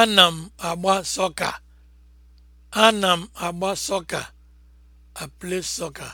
Ana m agba sọka. Ana m agba sọka. a play soccer.